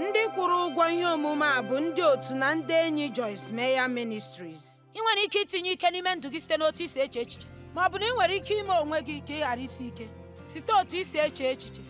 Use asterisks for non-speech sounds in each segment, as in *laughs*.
ndị kwụrụ ụgwọ ihe omume a bụ ndị otu na ndị enyi Joyce meya Ministries. ị nwere ike itinye ike n'ime ndụ gị site n'otu isi eche echiche ma ọ bụ na ị nwere ike ime onwe gị ka ị ghara isi ike site otu isi eche echiche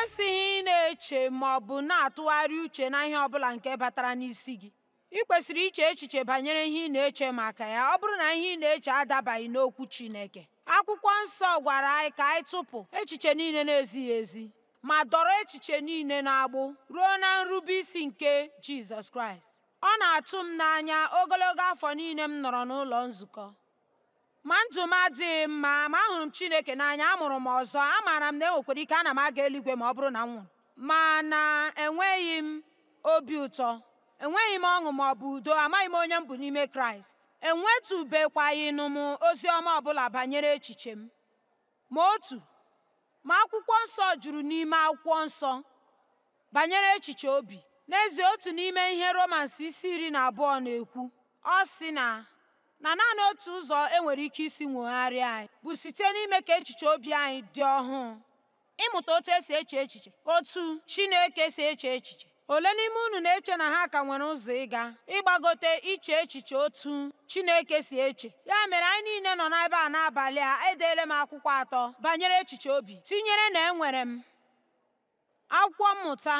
ikwesịghị ị na-eche ma ọ bụ na-atụgharị uche na ihe ọbụla nke batara n'isi gị ị kwesịrị iche echiche banyere ihe ị na-eche maka ya ọ bụrụ na ihe ị na-eche adabaghị n'okwu Chineke akwụkwọ nsọ gwara anyị ka anyị tụpụ echiche niile na-ezighị ezi ma dọrọ echiche niile na-agbụ ruo na nrube isi nke Jizọs Kraịst ọ na-atụ m n'anya ogologo afọ niile m nọrọ n'ụlọ nzukọ ma ndụ m adịghị mma ma ahụrụ m chineke n'anya amụrụ m ọzọ amaara m na enwekwara ike ana m aga eluigwe ma ọ bụrụ na m nwụrụ na enweghị m obi ụtọ enweghị m ọṅụ ma ọ bụ udo amaghị m onye m bụ n'ime kraịst enwetụbekwaghịnụ m ozi ọma ọbụla banyere echiche m ma otu ma akwụkwọ nsọ juru n'ime akwụkwọ nsọ banyere echiche obi n'ezie otu n'ime ihe romans isi iri na abụọ na-ekwu ọ sị na na naanị otu ụzọ enwere ike isi nwogharịa anyị bụ site n'ime ka echiche obi anyị dị ọhụụ ịmụta otu esi eche echiche otu Chineke si eche echiche ole n'ime unu na-eche na ha ka nwere ụzọ ịga ịgbagote iche echiche otu Chineke si eche ya mere anyị niile nọ n'ebe a n'abalị a edeela m akwụkwọ atọ banyere echiche obi tinyere na enwere m akwụkwọ mmụta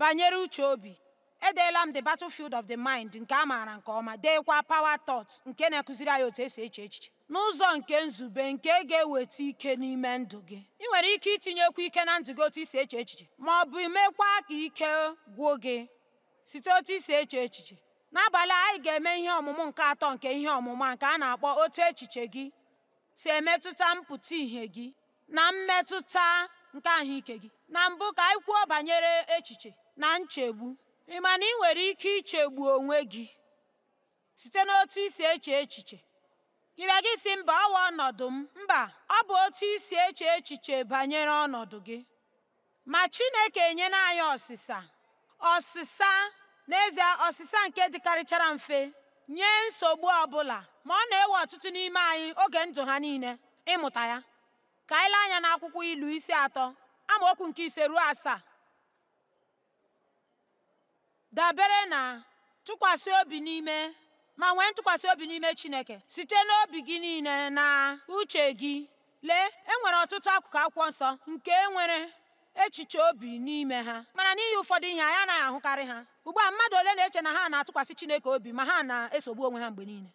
banyere uche obi edeela m the battlefield of the mind nke a maara nke ọma deekwa power thoughts nke na-akụziri anyị otu esi eche echiche n'ụzọ nke nzube nke ga-eweta ike n'ime ndụ gị ị nwere ike itinyekwu ike na ndụ gị otu isi eche echiche ma ọ bụ imekwa ka ike gwuo gị site otu isi eche echiche n'abalị anyị ga-eme ihe ọmụmụ nke atọ nke ihe ọmụma nke a na-akpọ otu echiche gị si emetụta mpụta ihe gị na mmetụta nke ahụike gị na mbụ ka anyị kwuo banyere echiche na nchegbu Ị ma na ị nwere ike ichegbu onwe gị site n'otu isi eche echiche? Ị bịa gị si mba ọ ọnọdụ m, mba ọ bụ otu isi eche echiche banyere ọnọdụ gị. Ma Chineke enyela anyị ọsịsa ọsịsa n'ezie ọsịsa nke dịkarịchara mfe nye nsogbu ọbụla ma ọ na-ewe ọtụtụ n'ime anyị oge ndụ ha niile ịmụta ya. Ka anyị lee anya n'akwụkwọ ilu isi atọ amaokwu nke ise ruo asaa. dabere na tụkwasị obi n'ime ma nwee ntụkwasị obi n'ime Chineke site n'obi gị niile na uche gị lee e nwere ọtụtụ akụkụ akwụkwọ nsọ nke nwere echiche obi n'ime ha mana n'ihi ụfọdụ ihe anyị anaghị ahụkarị ha ugbu a mmadụ ole na-eche na ha na-atụkwasị Chineke obi ma ha na-esogbu onwe ha mgbe niile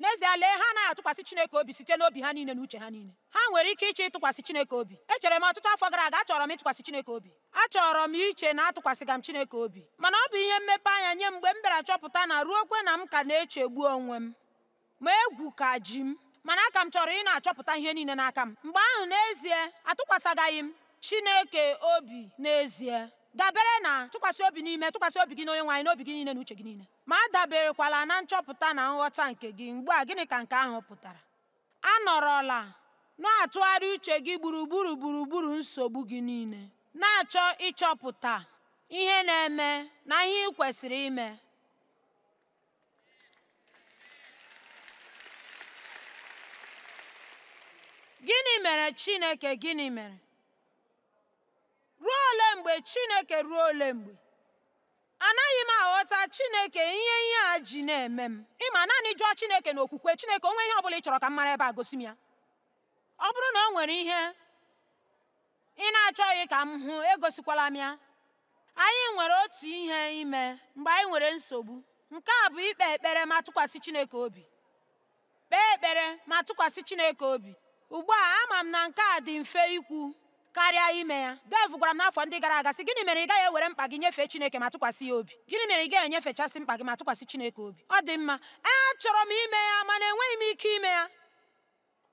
n'ezie lee ha anaghị atụkwasị chineke obi site n'obi ha niile na uche ha niile ha nwere ike iche ịtụkwasị chineke obi echere m ọtụtụ afọ gara aga achọrọ m ịtụkwasị chineke obi achọrọ m iche na atụkwasịga m chineke obi mana ọ bụ ihe mmepe anya nye mgbe m bịara chọpụta na ruo okwe na m ka na-echegbu onwe m ma egwu ka ji m mana aka m chọrọ ị na-achọpụta ihe niile n'aka m mgbe ahụ n'ezie atụkwasịgaghị m chineke obi n'ezie dabere na tụkwasị obi n'ime tụkwasị obi gị na onye n'obi gị niile na uche gị niile ma adaberekwala na nchọpụta na nghọta nke gị mgbe a gịnị ka nke ahụ pụtara anọrọla na-atụgharị uche gị gburugburu gburugburu nsogbu gị niile na-achọ ịchọpụta ihe na-eme na ihe ị kwesịrị ime gịnị mere Chineke gịnị mere ruo ole mgbe Chineke ruo ole mgbe aghọta chineke ihe ihe a ji na-eme m ịma naanị jụọ chineke na okwukwe chineke onwe ihe ọ bụla ị chọrọ ka m mara ebe a gosi m ya ọ bụrụ na o nwere ihe ị na-achọghị ka m hụ egosikwala m ya anyị nwere otu ihe ime mgbe anyị nwere nsogbu nke a bụ ikpe ekpere ma tụkwasị chineke obi kpee ekpere ma tụkwasị chineke obi ugbu a ama m na nke a dị mfe ikwu karịa ime ya dev gwara m n'afọ ndị gara aga sị gịnị mere ị gaghị ewere mkpa gị nyefee chineke ma tụkwasị ya obi gịnị mere ị gaghị enyefechasị mkpa gị ma tụkwasị chineke obi ọ dị mma achọrọ m ime ya mana enweghị m ike ime ya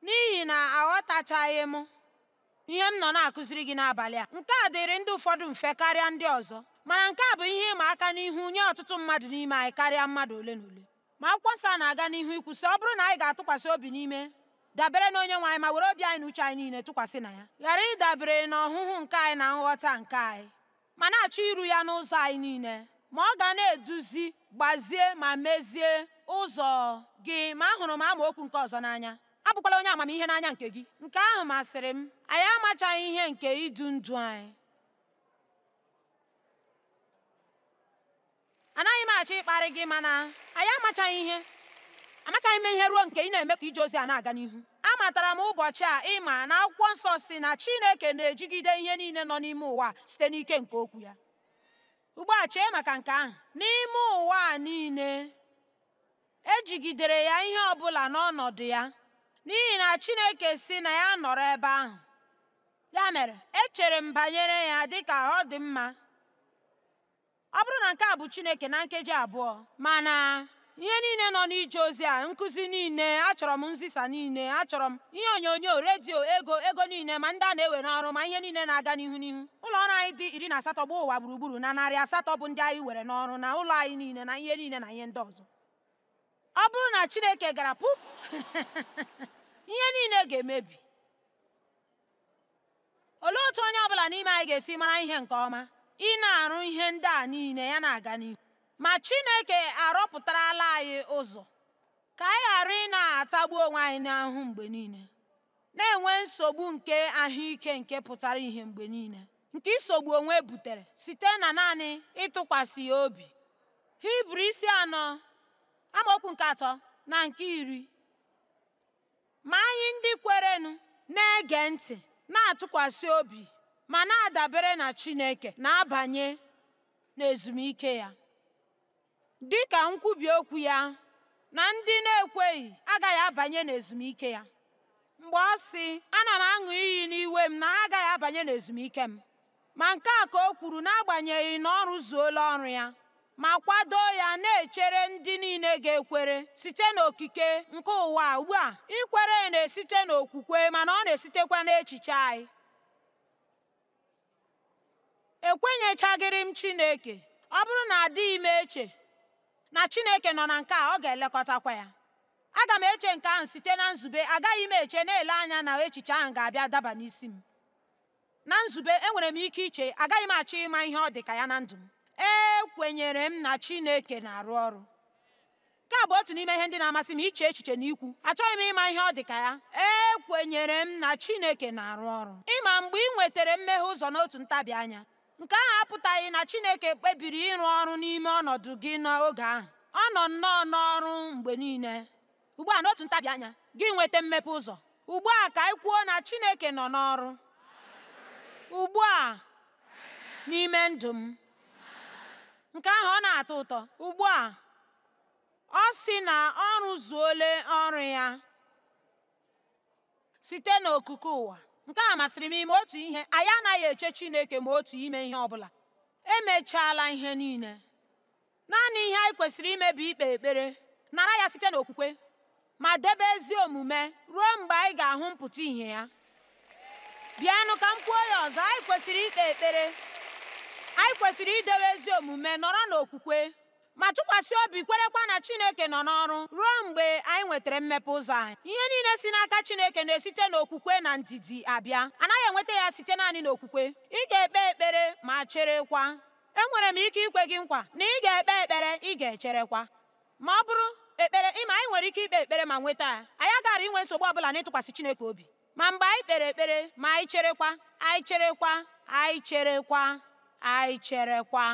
n'ihi na aghọtachaghị m ihe m nọ na-akụziri gị n'abalị a nke a dịrị ndị ụfọdụ mfe karịa ndị ọzọ mana nke a bụ ihe ịma aka n'ihu nye ọtụtụ mmadụ n'ime anyị karịa mmadụ ole na ole ma akwụkwọ nsọ na-aga n'ihu ikwu sị ọ bụrụ na anyị ga-atụkwasị obi n'ime dabere na onye nwe anyị ma were obi anyị na uche anyị niile tụkwasị na ya ghara ịdabere na ọhụhụ nke anyị na nghọta nke anyị ma na-achọ iru ya n'ụzọ anyị niile ma ọ ga na-eduzi gbazie ma mezie ụzọ gị ma ahụrụ m amaokwu nke ọzọ n'anya abụkwala onye amamihe n'anya nke gị nke ahụ masịrị m anyị amachaghị ihe nke idu ndụ anyị anaghị m achọ ịkparị gị mana anyị amachaghị ihe amachaghị m ihe ruo nke ị na-eme ka ije ozi a na-aga n'ihu amatara m ụbọchị a ịma na akwụkwọ nsọ si na chineke na-ejigide ihe niile nọ n'ime ụwa site n'ike nke okwu ya ugbu a chee maka nke ahụ n'ime ụwa a niile ejigidere ya ihe ọbụla n'ọnọdụ ya n'ihi na chineke si na ya nọrọ ebe ahụ ya mere echere m banyere ya dị ka ọ dị mma ọ bụrụ na nke a bụ chineke na nkeji abụọ mana ihe niile nọ n'ije ozi a nkụzi niile achọrọ m nzisa niile achọrọ m ihe onyonyo redio ego ego niile ma ndị a na-ewe n'ọrụ ma ihe niile na-aga n'ihu n'ihu ụlọ ọrụ anyị dị iri na asatọ gbaa ụwa gburugburu na narị asatọ bụ ndị anyị were n'ọrụ na ụlọ anyị niile na ihe niile na ihe ndị ọzọ ọ bụrụ na chineke gara pụp *laughs* ihe niile ga-emebi olee otu onye ọbụla n'ime anyị ga-esi mara ihe nke ọma ị na-arụ ihe ndị a niile ya na-aga n'ihu Ma Chineke arọpụtarala anyị ụzọ ka anyị ghara ị na-atagbu onwe anyị n'ahụ mgbe niile, na-enwe nsogbu nke ahụike nke pụtara ihe mgbe niile nke isogbu onwe butere site na naanị ịtụkwasị ya obi. Hibru isi anọ amaokwu nke atọ na nke iri ma anyị ndị kwerenụ na-ege ntị na-atụkwasị obi ma na-adabere na Chineke na-abanye n'ezumike ya. dị ka nkwubi okwu ya na ndị na-ekweghị agaghị abanye n'ezumike ya mgbe ọ sị ana m aṅụ iyi n'iwe m na agaghị abanye n'ezumike m ma nke a ka o kwuru n'agbanyeghị na ọ rụzuola ọrụ ya ma kwado ya na-echere ndị niile ga-ekwere site n'okike nke ụwa ugbu a ikwere na-esite n'okwukwe mana ọ na-esitekwa n'echiche anyị ekwenyechaghịrị m Chineke ọ bụrụ na adịghị m eche na chineke nọ na nke a ọ ga-elekọtakwa ya aga m eche nke ahụ site na nzube agaghị m eche na-ele anya na echiche ahụ ga-abịa daba n'isi m na nzube enwere m ike iche agaghị m achọ ịma ihe ọ dị ka ya na ndụ m ekwenyere m na chineke na-arụ ọrụ nke a bụ otu n'ime ihe ndị na-amasị m iche echiche na ikwu achọghị m ịma ihe ọ dị ka ya ekwenyere m na chineke na-arụ ọrụ ịma mgbe ị nwetara mmeghe ụzọ n'otu ntabi anya nke ahụ apụtaghị na Chineke kpebiri ịrụ ọrụ n'ime ọnọdụ gị n'oge ahụ ọ nọ nnọọ n'ọrụ mgbe niile ugbu a n'otu ntabi anya gị nweta mmepe ụzọ ugbu a ka anyị kwuo na Chineke nọ n'ọrụ ugbu a n'ime ndụ m nke ahụ ọ na-atọ ụtọ ugbu a ọ sị na ọ rụzuole ọrụ ya site n'okuku ụwa nke a masịrị m ime otu ihe anyị anaghị eche Chineke ma otu ime ihe ọ bụla emechaala ihe niile naanị ihe anyị kwesịrị ime bụ ikpe ekpere nara ya site n'okwukwe ma debe ezi omume ruo mgbe anyị ga-ahụ mpụta ihe ya bịanụ ka m kwuo ya ọzọ anyị kwesịrị ikpe ekpere anyị kwesịrị idebe ezi omume nọrọ n'okwukwe ma tụkwasị obi kwerekwa na Chineke nọ n'ọrụ ruo mgbe anyị nwetara mmepe ụzọ anyị ihe niile si n'aka Chineke na-esite n'okwukwe na ndidi abịa anaghị enweta ya site naanị n'okwukwe ị ga-ekpe ekpere ma cherekwa enwere m ike ikwe gị nkwa na ị ga-ekpe ekpere ị ga-echerekwa ma ọ bụrụ ekpere ịma anyị nwere ike ikpe ekpere ma nweta ya anyị agaghị inwe nsogbu ọbụla n'ịtụkwasị Chineke obi ma mgbe anyị kpere ekpere ma anyị cherekwa anyị cherekwa anyị cherekwa anyị cherekwa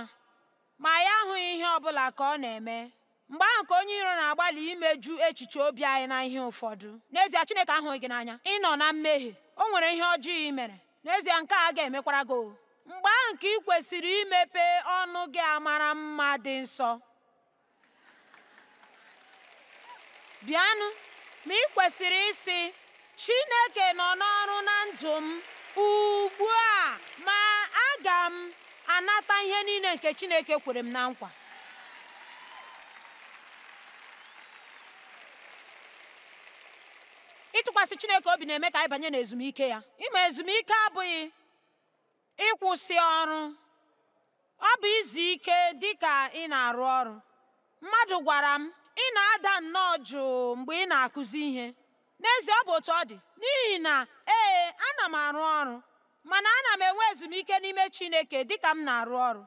ma ya ahụghị ihe ọ bụla ka ọ na-eme mgbe ahụ ka onye iro na-agbalị imeju echiche obi anyị na ihe ụfọdụ n'ezie Chineke ahụghị gị n'anya ị nọ na mmehie o nwere ihe ọjọọ i mere n'ezie nke a ga-emekwara gị mgbe ahụ ka ị kwesịrị imepe ọnụ gị amara mma dị nsọ bịanụ ma ị kwesịrị ịsị Chineke nọ n'ọrụ na ndụ m ugbu a ma aga m anata ihe niile nke chineke kwere m na nkwa ịtụkwasị chineke obi na-eme ka anyị banye n'ezumike ya ịma ezumike abụghị ịkwụsị ọrụ ọ bụ izu ike dị ka ị na-arụ ọrụ mmadụ gwara m ị na-ada nnọọ jụụ mgbe ị na-akụzi ihe n'ezie ọ bụ otu ọ dị n'ihi na ee ana m arụ ọrụ mana ana m enwe ezumike n'ime Chineke dịka m na-arụ ọrụ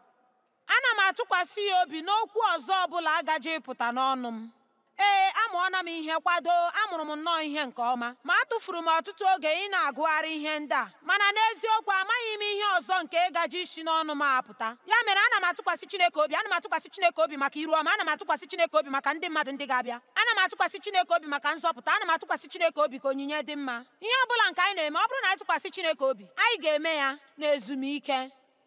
ana m atụkwasị ya obi n'okwu ọzọ ọbụla agaje ịpụta n'ọnụ m ee amụọna m ihe kwado amụrụ m nnọọ ihe nke ọma ma atụfuru m ọtụtụ oge ị na-agụgharị ihe ndị a mana n'eziokwu amaghị m ihe ọzọ nke ịgaji isi n'ọnụ m apụta ya mere ana m atụkwasị Chineke obi ana m atụkwasị Chineke obi maka iru ọma ana m atụkwasị Chineke obi maka ndị mmadụ ndị ga-abịa ana m atụkwasị Chineke obi maka nzọpụta ana m atụkwasị Chineke obi ka onyinye dị mma ihe ọ bụla nke anyị na-eme ọ bụrụ na Chineke obi anyị ga-eme ya na ezumike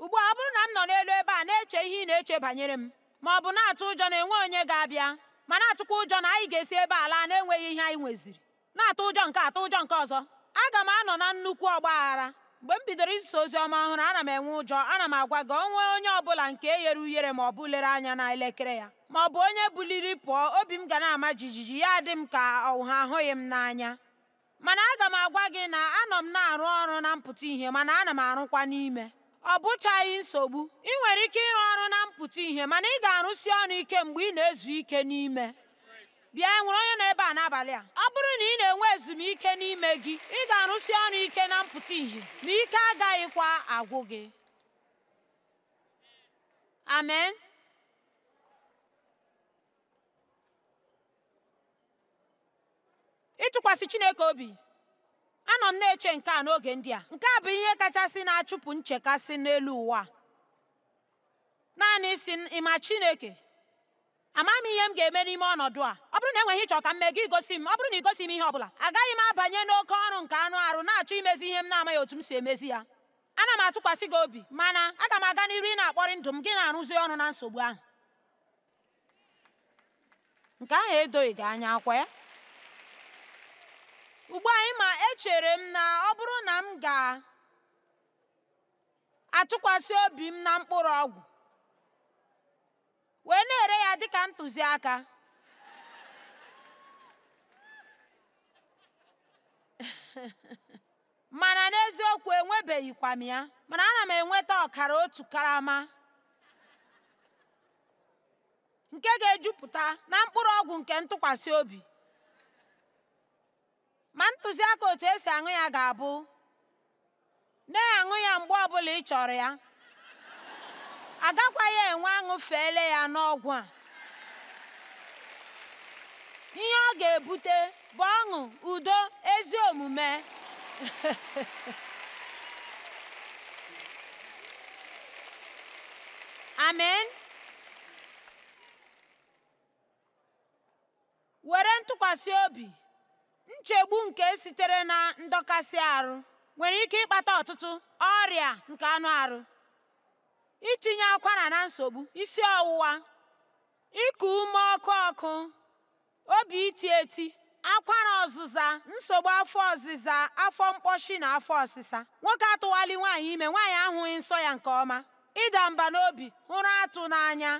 ugbu a ọ bụrụ na m nọ n'elu ebe a na-eche ihe ị na-eche banyere m ma ọ bụ na-atụ ụjọ na enwe onye ga-abịa ma na ụjọ na anyị ga-esi ebe ala na-enweghị ihe anyị nweziri na-atụ ụjọ nke atụ ụjọ nke ọzọ aga m anọ na nnukwu ọgba aghara mgbe m bidoro iso ozi ọma ọhụrụ ana m enwe ụjọ ana m agwa gị onwe onye bụla nke e ghere ughere ma ọ bụ lere anya na elekere ya ma ọ bụ onye buliri pụọ obi m ga na-ama jijiji ya dị m ka ọha ahụghị m n'anya mana aga m agwa gị na anọ m na-arụ ọrụ na mpụta ihe mana ana m arụkwa n'ime ọ bụchaghị nsogbu ị nwere ike ịrụ ọrụ na mpụta ihe mana ị ga-arụsi ọrụ ike mgbe ị na-ezu ike n'ime bịa nwere onye nọ ebe a n'abalị a ọ bụrụ na ị na-enwe ezumike n'ime gị ị ga-arụsi ọrụ ike na mpụta ihe ma ike agaghịkwa agwụ gị amen ịtụkwasị Chineke obi anọ m na-eche nke a n'oge ndị a nke a bụ ihe kachasị na-achụpụ nchekasị n'elu ụwa naanị si ịma chineke amaghị m ihe m ga-eme n'ime ọnọdụ a ọ bụrụ na enweghị ịchọ ka m mee gị igosi m ọ bụrụ na igosi m ihe ọ bụla agaghị m abanye n'oke ọrụ nke anụ arụ na-achọ imezi ihe m na-amaghị otu m si emezi ya ana m atụkwasị gị obi mana aga m aga n'iru ị na-akpọrị ndụ m gị na-arụzi ọrụ na nsogbu ahụ nke ahụ edoghị gị anya akwa ya Ugbu a ma echere m na ọ bụrụ na m ga atụkwasị obi m na mkpụrụ ọgwụ, wee na ere ya dịka ntụziaka, *laughs* mana n'eziokwu enwebeghịkwa m ya, mana ana m enweta ọkara otu karama nke ga ejupụta na mkpụrụ ọgwụ nke ntụkwasị obi. ma ntụziaka otu esi aṅụ ya ga-abụ na-aṅụ ya mgbe ọbụla ị chọrọ ya agakwaghị enwe aṅụ feele ya n'ọgwụ a ihe ọ ga-ebute bụ ọṅụ udo ezi omume *laughs* amen were ntụkwasị obi Nchegbu nke sitere na ndọkasị arụ nwere ike ịkpata ọtụtụ ọrịa nke anụ arụ. itinye akwara na nsogbu, isi ọwụwa, ịkụ ume ọkụ ọkụ, obi iti eti, akwara ọzụza, nsogbu afọ ọzịza, afọ mkpọshi na afọ ọsịsa. Nwoke atụwali nwaanyị ime, nwaanyị ahụghị nsọ ya nke ọma, ịda mba n'obi, hụrụ atụ n'anya.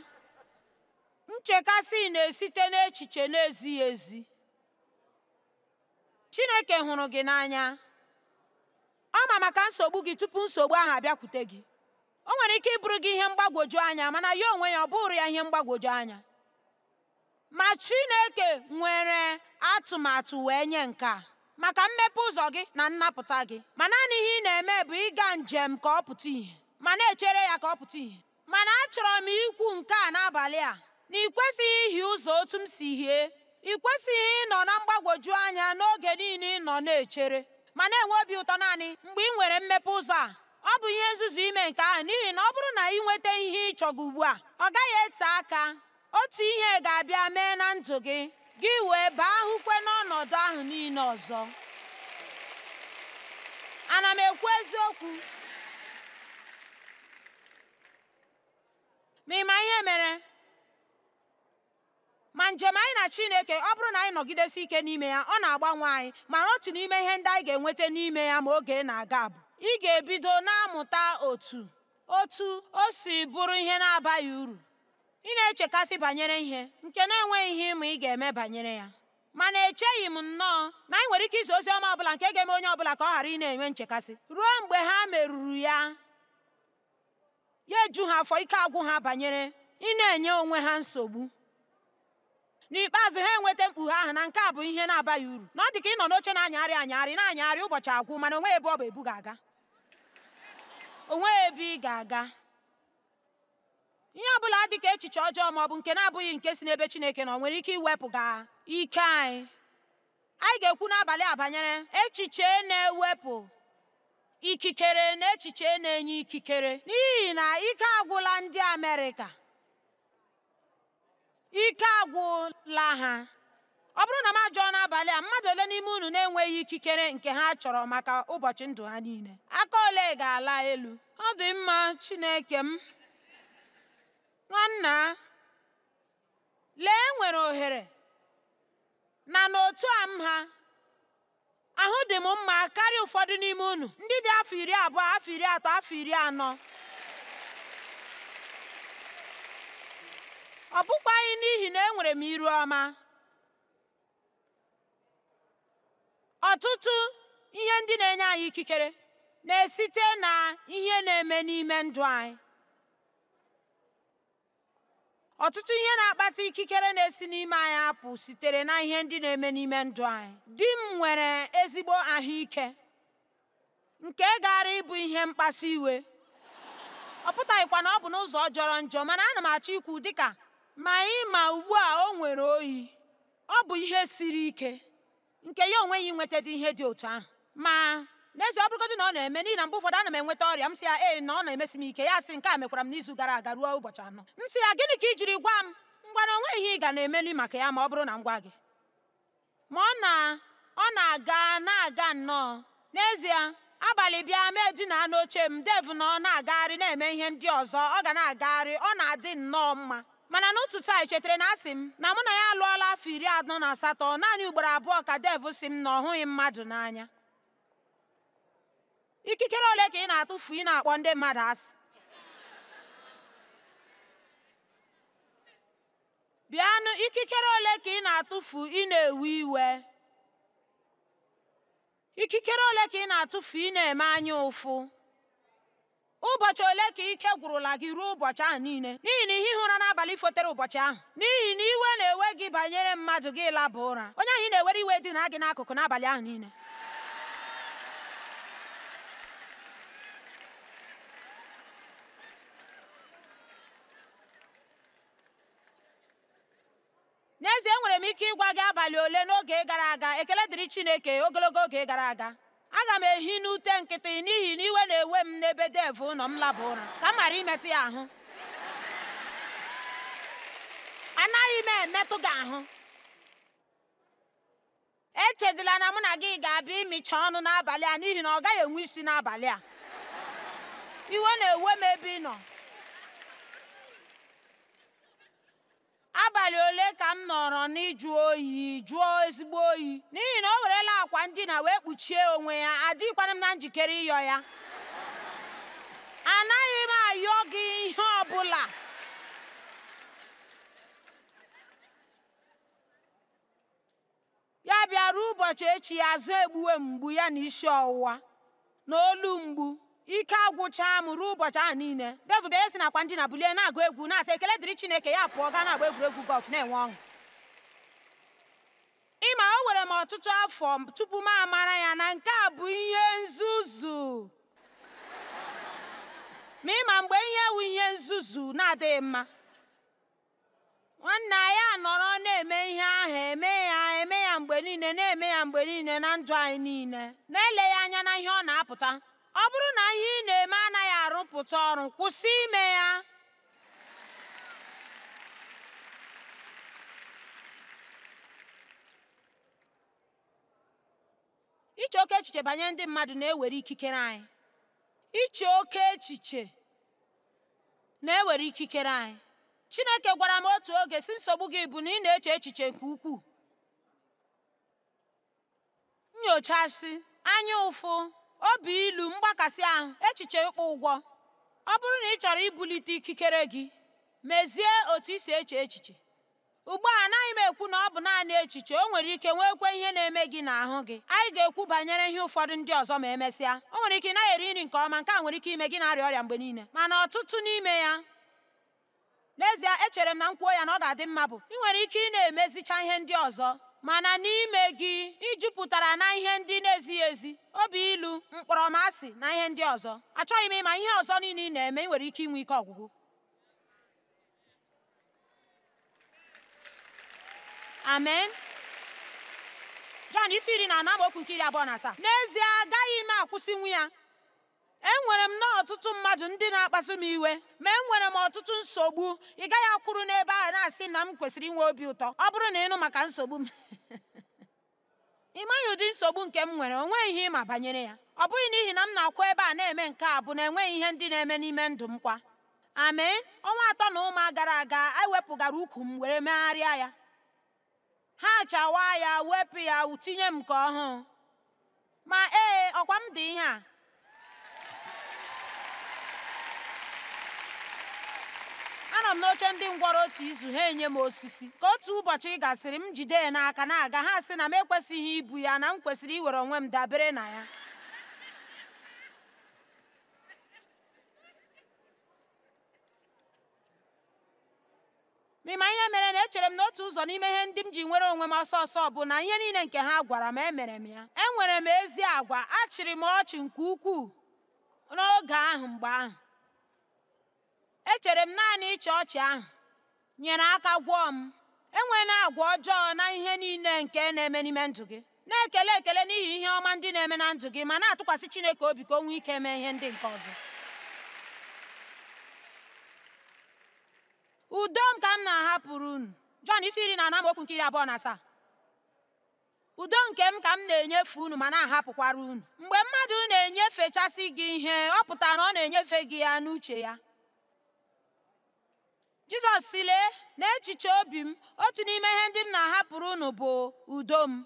Nchekasị na-esite n'echiche na-ezighị ezi. chineke hụrụ gị n'anya ọ ma maka nsogbu gị tupu nsogbu ahụ abịakwute gị o nwere ike ịbụrụ gị ihe mgbagwoju anya mana ya onwe ya ọ bụrụ ya ihe mgbagwoju anya ma chineke nwere atụmatụ wee nye nke a maka mmepe ụzọ gị na nnapụta gị ma naanị ihe ị na-eme bụ ịga njem ka ọ pụta ìhè ma na-echere ya ka ọ pụta ìhè mana achọrọ m ikwu nke a n'abalị a na ị kwesịghị ihi ụzọ otu m si hie ị kwesịghị ịnọ na mgbagwoju anya n'oge niile ị nọ na-echere ma na-enwe obi ụtọ naanị mgbe ị nwere mmepe ụzọ a ọ bụ ihe nzuzu ime nke ahụ n'ihi na ọ bụrụ na ị nweta ihe ị ugbu a ọ gaghị ete aka otu ihe ga-abịa mee na ndụ gị gị wee baa ahụkwe n'ọnọdụ ahụ niile ọzọ ana m ekwu eziokwu ma ị ma ihe mere ma njem anyị na chineke ọ bụrụ na anyị nọgidesi ike n'ime ya ọ na-agbanwe anyị mana otu n'ime ihe ndị anyị ga-enweta n'ime ya ma oge na-aga bụ ị ga-ebido na-amụta otu otu o si bụrụ ihe na-abaghị uru ị na-echekasị banyere ihe nke na-enweghị ihe ịma ị ga-eme banyere ya mana echeghị m nnọọ na anyị nwere ike izi ozi ọma ọbụla nke ga-eme onye ọbụla ka ọ ghara ị na-enwe nchekasị ruo mgbe ha merụrụ ya ya eju ha afọ ike agwụ ha banyere ị na-enye onwe ha nsogbu N'ikpeazụ ha enweta mkpughe ahụ na nke a bụ ihe na-abaghị uru na ọ dị ka ị nọ n'oche na-anyagharị anyagharị na-anyagharị ụbọchị agwụ mana onwe ebe ọ bụ ebu ga-aga onwe ebe ị ga-aga ihe ọ bụla dị ka echiche ọjọọ ma ọ bụ nke na-abụghị nke si n'ebe Chineke ọ nwere ike iwepụ ga ike anyị anyị ga-ekwu n'abalị a banyere echiche na-ewepụ ikikere na echiche na-enye ikikere n'ihi na ike agwụla ndị Amerịka ike agwụla ha ọ bụrụ na m ajọ n'abalị a mmadụ ole n'ime unu na-enweghị ikikere nke ha chọrọ maka ụbọchị ndụ ha niile aka ole ga-ala elu ọ dị mma chineke m nwanna lee e nwere ohere na n'otu a m ha ahụ dị m mma karịa ụfọdụ n'ime unu ndị dị afọ iri abụọ afọ iri atọ afọ iri anọ ọ anyị n'ihi na enwere m iru ọma. Ọtụtụ ihe ndị na-enye anyị ikikere na-esite na ihe na-eme n'ime ndụ anyị. Ọtụtụ ihe na-akpata ikikere na-esi n'ime anyị apụ sitere na ihe ndị na-eme n'ime ndụ anyị. Di m nwere ezigbo ahụike nke gaara ịbụ ihe mkpasu iwe. Ọ pụtaghịkwa na ọ bụ n'ụzọ jọrọ njọ mana ana m achọ ikwu dịka Ma ịma ugbu a o nwere oyi, ọ bụ ihe siri ike nke ya onwe ya ihe dị otu ahụ. Ma n'ezie ọ bụrụgodị na ọ na-eme n'ihi na mgbe ụfọdụ ana m enweta ọrịa m sị ya ee na ọ na-emesi m ike ya sị nke a mekwara m n'izu gara aga ruo ụbọchị anọ m sị ya gịnị ka i jiri gwa m ngwa na onwe ihe ị ga na-emeli maka ya ma ọ bụrụ na m gwa gị ma ọ na ọ na-aga na-aga nnọọ n'ezie abalị bịa mee edina n'oche m dev na ọ na-agagharị na-eme ihe ndị ọzọ ọ ga na-agagharị ọ na-adị nnọọ mma mana n'otu a echetara na asị m na mụ na ya alụọla afọ iri anọ na asatọ naanị ugboro abụọ ka dev si m na ọ hụghị mmadụ n'anya ikikere ole ka ị na-atụfu ị na-akpọ ndị mmadụ asị bịanụ ikikere ole ka ị na-atụfu ị na-ewe iwe ikikere ole ka ị na-atụfu ị na-eme anya ụfụ ụbọchị ole ka ike gwụrụla gị ruo ụbọchị ahụ niile n'ihi na ihe ụra n'abalị fotere ụbọchị ahụ n'ihi na iwe na-ewe gị banyere mmadụ gị laba ụra onye anyị na-ewere iwe dị na gị n'akụkụ n'abalị ahụ niile n'ezie enwere m ike ịgwa gị abalị ole n'oge gara aga ekele dịrị Chineke ogologo oge gara aga aga m ehi n'ute nkịtị n'ihi na iwe na-ewe m n'ebe dev ụlọ m laba ụra ka m mara imetụ ya ahụ anaghị m emetụ gị ahụ echedila na mụ na gị ga-abịa ịmịcha ọnụ n'abalị a n'ihi na ọ gaghị enwe isi n'abalị a iwe na-ewe m ebe ị nọ abalị ole ka m nọrọ n'ịjụ oyi jụọ ezigbo oyi n'ihi na o werela akwa ndina wee kpuchie onwe ya adịghịkwana m na njikere ịyọ ya anaghị m ayọ gị ihe ọbụla ya bịara ụbọchị echi ya azụ egbuwe mgbu ya na isi ọwụwa na olu mgbu ike agwụcha m ruo ụbọchị ahụ niile devil bịa e si nakwa ndina bulie na-agụ egwu na-asa ekele dịrị chineke ya pụọ gaa na-agba egwuregwu gọlf na-enwe ọṅụ ịma o were m ọtụtụ afọ tupu m amara ya na nke a bụ ihe nzuzu ma ịma mgbe ihe ewu ihe nzuzu na-adịghị mma nwanne anyị anọrọ na-eme ihe ahụ eme ya eme ya mgbe niile na-eme ya mgbe niile na ndụ anyị niile na ele ya anya na ihe ọ na-apụta ọ bụrụ na ihe ị na-eme anaghị arụpụta ọrụ kwụsị ime ya iche oke echiche banyere ndị mmadụ na-ewere ikikere anyị iche oke echiche na-ewere ikikere anyị Chineke gwara m otu oge si nsogbu gị bụ na ị na-eche echiche nke ukwuu nyochasị anya ụfụ obi ilu mgbakasị ahụ echiche ịkpụ ụgwọ ọ bụrụ na ị chọrọ ibulite ikikere gị mezie otu i si eche echiche ugbu a anaghị m ekwu na ọ bụ naanị echiche o nwere ike nwekwe ihe na-eme gị na ahụ gị anyị ga-ekwu banyere ihe ụfọdụ ndị ọzọ ma emesịa o nwere ike ị naghị eri nri nke ọma nke a nwere ike ime gị na-arịa ọrịa mgbe niile mana ọtụtụ n'ime ya n'ezie echere m na m ya na ọ ga-adị mma bụ ị nwere ike ị na-emezicha ihe ndị ọzọ mana n'ime gị ijupụtara jupụtara na ihe ndị na-ezighị ezi obi ilu mkpọrọmasị na ihe ndị ọzọ achọghị m ịma ihe ọzọ niile ị na-eme ị nwere ike inwe ike ọgwụgwụ amen Jọn isi iri na anọ amaokwu nke iri abụọ na asaa n'ezie agaghị m akwụsịnwu ya enwere m n'ọtụtụ ọtụtụ mmadụ ndị na-akpasu m iwe ma enwere m ọtụtụ nsogbu ị gaghị akwụrụ n'ebe a na-asị na m kwesịrị inwe obi ụtọ ọ bụrụ na ịnụ maka nsogbu m *laughs* ị maghị ụdị nsogbu nke m nwere o nweghị ihe ịma banyere ya ọ bụghị n'ihi na m na-akwụ ebe a na-eme nke a bụ na enweghị ihe ndị na-eme n'ime ndụ m kwa amen ọnwa atọ na ụma gara aga ewepụgara ukwu m were megharịa ya ha chawa ya wepụ ya tinye m nke ọhụụ ma ee ọkwa m dị ihe a ana m n'oche ndị ngwọrọ otu izu ha enye m osisi ka otu ụbọchị gasịrị m jide ya n'aka na-aga ha sị na m ekwesịghị ibu ya na m kwesịrị iwere onwe m dabere na ya ịma ihe mere na echere m n'otu ụzọ n'ime ihe ndị m ji nwere onwe m ọsọ ọsọ bụ na ihe niile nke ha gwara m emere m ya enwere m ezi agwa achịrị m ọchị nke ukwuu n'oge ahụ mgbe ahụ Echere m naanị ịchị ọchị ahụ nyere aka gwọọ m. na-agwa ọjọọ na ihe niile nke na-eme n'ime ndụ gị. Na-ekele ekele n'ihi ihe ọma ndị na-eme na ndụ gị ma na-atụkwasị Chineke obi ka o nwee ike mee ihe ndị nke ọzọ. Udo m ka m na-ahapụrụ unu. Jọn isi iri na anọ okwu nke iri abụọ na asaa. Udo nke m ka m na-enyefe unu ma na-ahapụkwara unu. Mgbe mmadụ na-enyefechasị gị ihe, ọ pụtara na ọ na-enyefe gị ya n'uche ya. Jizọs si Lee, n'echiche obi m, otu n'ime ihe ndị m na-ahapụrụ unu bụ udo m.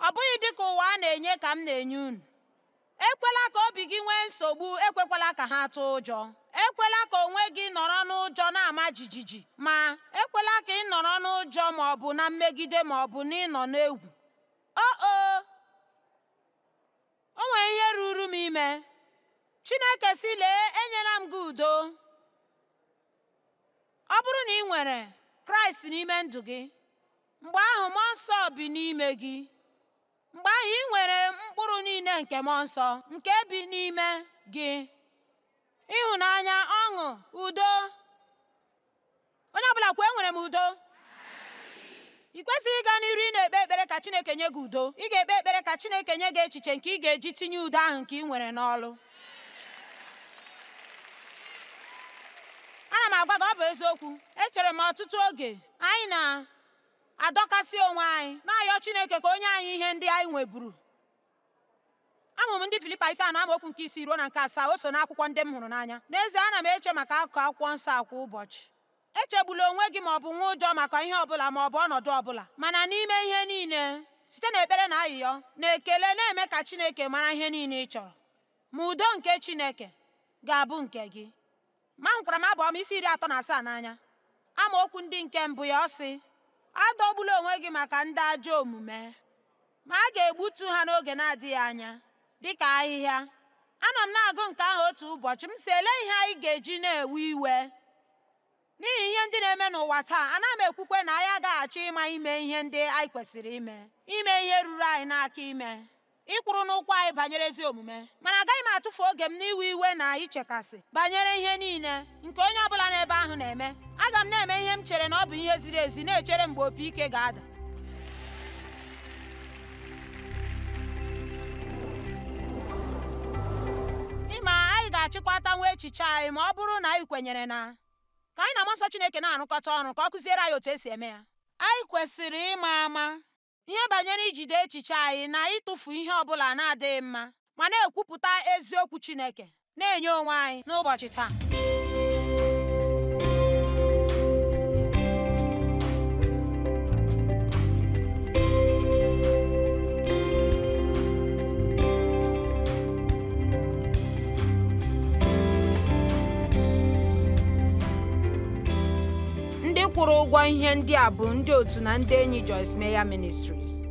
Ọ bụghị dị ka ụwa na-enye ka m na-enye unu. Ekwela ka obi gị nwee nsogbu, ekwekwala ka ha tụọ ụjọ. Ekwela ka onwe gị nọrọ n'ụjọ na-ama jijiji, ma ekwela ka ị nọrọ n'ụjọ ma ọ bụ na mmegide ma ọ bụ na ịnọ n'egwu. O o! O nwere ihe ruru m ime. Chineke sị, Lee, enyela m gị udo. Ọ bụrụ na ị nwere Kraịst n'ime ndụ gị, mgbe ahụ mmụọ nsọ bi n'ime gị. Mgbe ahụ ị nwere mkpụrụ niile nke mmụọ nsọ nke bi n'ime gị: ịhụnanya, ọṅụ, udo. Onye ọbụla kwuo enwere m udo. Ị kwesịghị ịga n'iru ị na-ekpe ekpere ka Chineke nye gị udo. Ị ga-ekpe ekpere ka Chineke nye gị echiche nke ị ga-eji tinye udo ahụ nke ị nwere n'ọlụ. ana m agwa gị ọ bụ eziokwu echere m ọtụtụ oge anyị na-adọkasị onwe anyị na-ayọ Chineke ka onye anyị ihe ndị anyị nweburu amụm ndị Filipa na anọ okwu nke isi ruo na nke asaa o so n'akwụkwọ ndị m hụrụ n'anya n'ezie ana m eche maka akụkụ akwụkwọ nsọ a kwa ụbọchị echegbula onwe gị ma ọ bụ nwa ụjọ maka ihe ọbụla ma ọ bụ ọnọdụ ọbụla mana n'ime ihe niile site n'ekpere na ayịyọ na ekele na-eme ka Chineke mara ihe niile ị chọrọ ma udo nke Chineke ga-abụ nke gị ma nkwara m m, isi iri atọ na asaa n'anya amaokwu ndị nke mbụ ya ọ sị adọgbula onwe gị maka ndị ajọ omume ma a ga-egbutu ha n'oge na-adịghị anya dịka ahịhịa anọ m na-agụ nke ahụ otu ụbọchị m si ele ihe anyị ga-eji na-ewe iwe n'ihi ihe ndị na-eme n'ụwa taa ana m ekwukwe na anyị agaghachi ịma ime ihe ndị anyị kwesịrị ime ime ihe ruru anyị n'aka ime ịkwụrụ n'ụkwụ anyị banyere ezi omume mana agaghị m atụfu oge m n'iwe iwe na ichekasị banyere ihe niile nke onye ọ bụla n'ebe ahụ na-eme aga m na-eme ihe m chere na ọ bụ ihe ziri ezi na-echere mgbe opi ike ga-ada ịma anyị ga-achịkwata nwa echiche anyị ma ọ bụrụ na anyị kwenyere na ka anyị na mmụọ Chineke na-arụkọta ọrụ ka ọ kụziere anyị otu esi eme ya anyị kwesịrị ịma ama Ihe banyere ijide echiche anyị na ịtụfu ihe ọbụla na-adịghị mma ma na-ekwupụta eziokwu Chineke na-enye onwe anyị n'ụbọchị taa. kwụrụ ụgwọ ihe ndị a bụ ndị otu na ndị enyi Joyce Meyer Ministries.